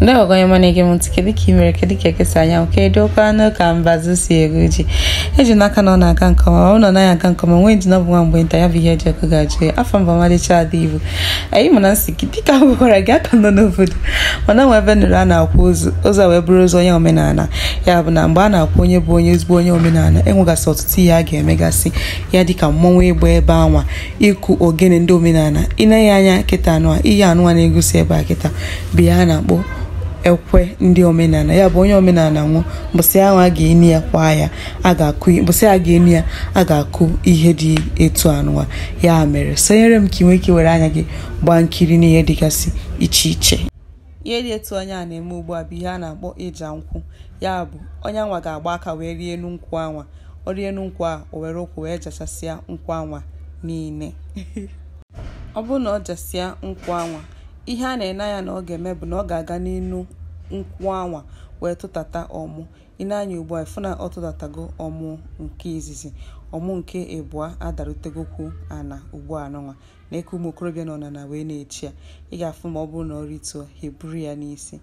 ndị onye mana ege m ntị kedu ka imere mere kedu ka ekesa anyanwụ kedu okwa anụ ka mbazụ si eru ji eji n'aka na ọ na-aga nke ọma ọ nọ na ya aga nke ọma nwee ndịna ọbụ nwa mgbe nta ya bụ ihe e ji ọkụ ga-ajụ ya afọ mba ọmalịcha ada ibu anyị ma na nsị gị dịka m gị aka nọ n'obodo mana nwa ebe nụrụ a na-akwụ ụzọ wee bụrụ ụzọ onye omenala ya bụ na mgbe a na-akwụ onye bụ onye ezigbo onye omenala enwegasị ọtụtụ ihe a ga-emegasị ya dị ka mmọnwụ ịgba ebe anwa ịkụ ogene ndị omenala ịna ịneghe anya kịta anụa ihe anụwa na-egosi ebe a kịta bi ya a na-akpọ ekwe ndị omenala ya bụ onye omenala nwụ bụsị ahụ a ga-eni ya kwa ya a ga-akụ mbọsị a ga-eni ya a ga-akụ ihe dị etu anụwa ya mere sonyere m ka ị nwee ike were anya gị gbaa nkiri n'ihe dịgasị iche iche ihe dị etu onye a na-eme ugbu a bụ ihe a na-akpọ ịja nkwụ ya bụ onye anwa ga-agba aka wee rie enu nkwụ anwa ọ rie enu a o were ụkwụ wee jachasịa nkwụ anwa niile ọ bụrụ na ọ jasịa nkwụ anwa ihe a na-ene anya na ọ ga-eme bụ na ọ ga-aga n'inu nkwụ anwa wee tụtata ọmụ ịna anya ugbu a ịfụ na ọ tụtatago ọmụ nke izizi ọmụ nke ịbụa adarutegokwu ana ugbu a nụnwa na eke ụmụ okorobịa nọ na na wee na-echi ya ị ga-afụ ma ọ bụrụ na ọ rituo ha ya n'isi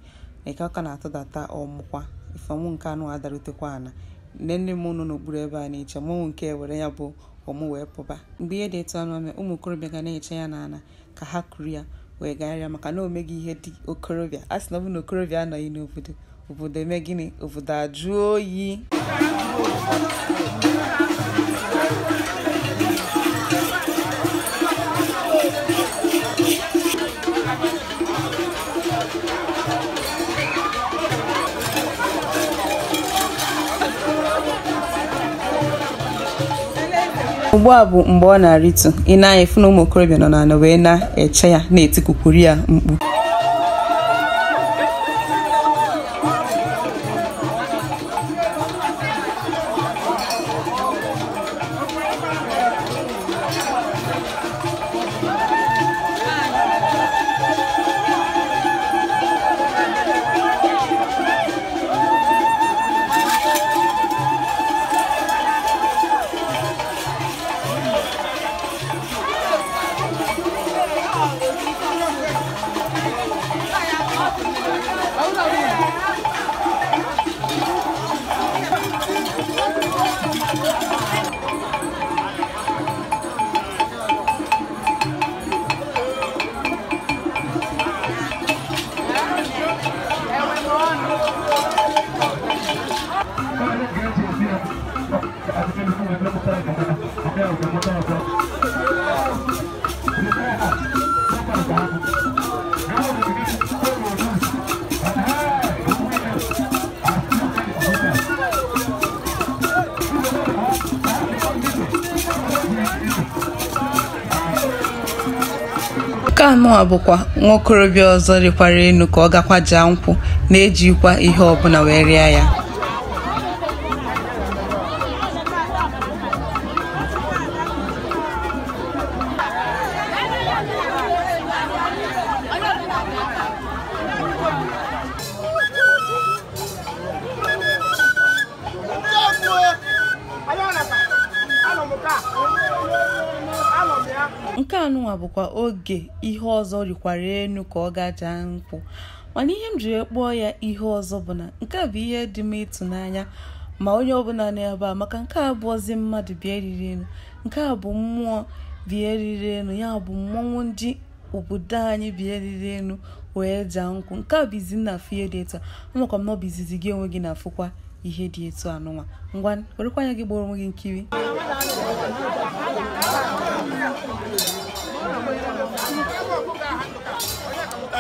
na eke ọka na-atụdata ọmụkwa ife ọmụ nke anụ adarutekwa ana nne nne m nọ n'okpuru ebe a na-eche ọmụmụ nke were ya bụ ọmụ wee pụba mgbe ihe dị etu anụ ụmụ okorobịa ga na-eche ya n'ana ka ha kuru ya wee gagharịa maka na omeghị ihe dị okorobịa a sị na ọ na okorobịa anọghị n'obodo obodo eme gịnị obodo ajụ oyi ugbu a bụ mgbe ọ na-arịtu ị na-anya efu na ụmụ okorobịa nọ n'ala wee na-eche ya na-etikukwuru ya mkpu nke anọ bụkwa nwa okorobịa ọzọ rịkwara enu ka ọ gakwa jaa nkwụ na-ejikwa ihe ọbụla wee rịa ya nke anụnwa bụkwa oge ihe ọzọ rikwara elu ka ọ gajaa nkwụ mana ihe m jiri kpọọ ya ihe ọzọ bụ na nke a bụ ihe dị m ịtụnanya ma onye ọbụla n'ebe a maka nke a bụ bụọzi mmadụ bịa eriri enu nke a bụ mmụọ bịa eriri elu ya bụ mmọnwụ ndị obodo anyị bịa eriri elu wee jaa nkwụ nke a bụ izi na afụ ihe dị etu a amakwa m na ọ bụ izizi gị onwe gị na-afụkwa ihe dị etu anụnwa ngwa werekwa anya gị gboro onwe gị nkiri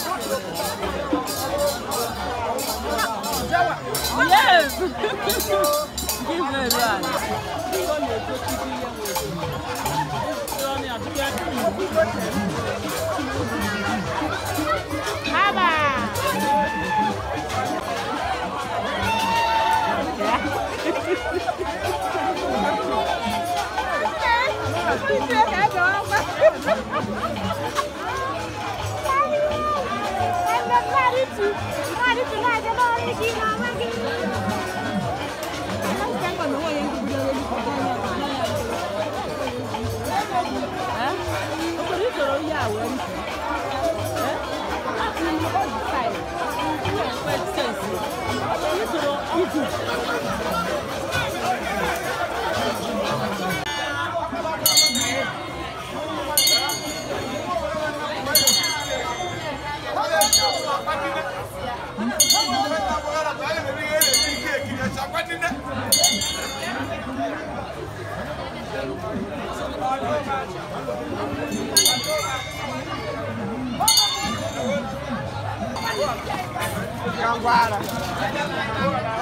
Yes! Give me that. Baba! Hãy subscribe cho kênh Ghiền Mì Gõ Để không bỏ 哎，你出来，你不要你干嘛来？哎，那是监管的话，也是为了让 ngon qua rồi